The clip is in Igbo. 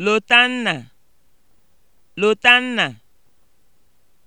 Lotanna, Lotanna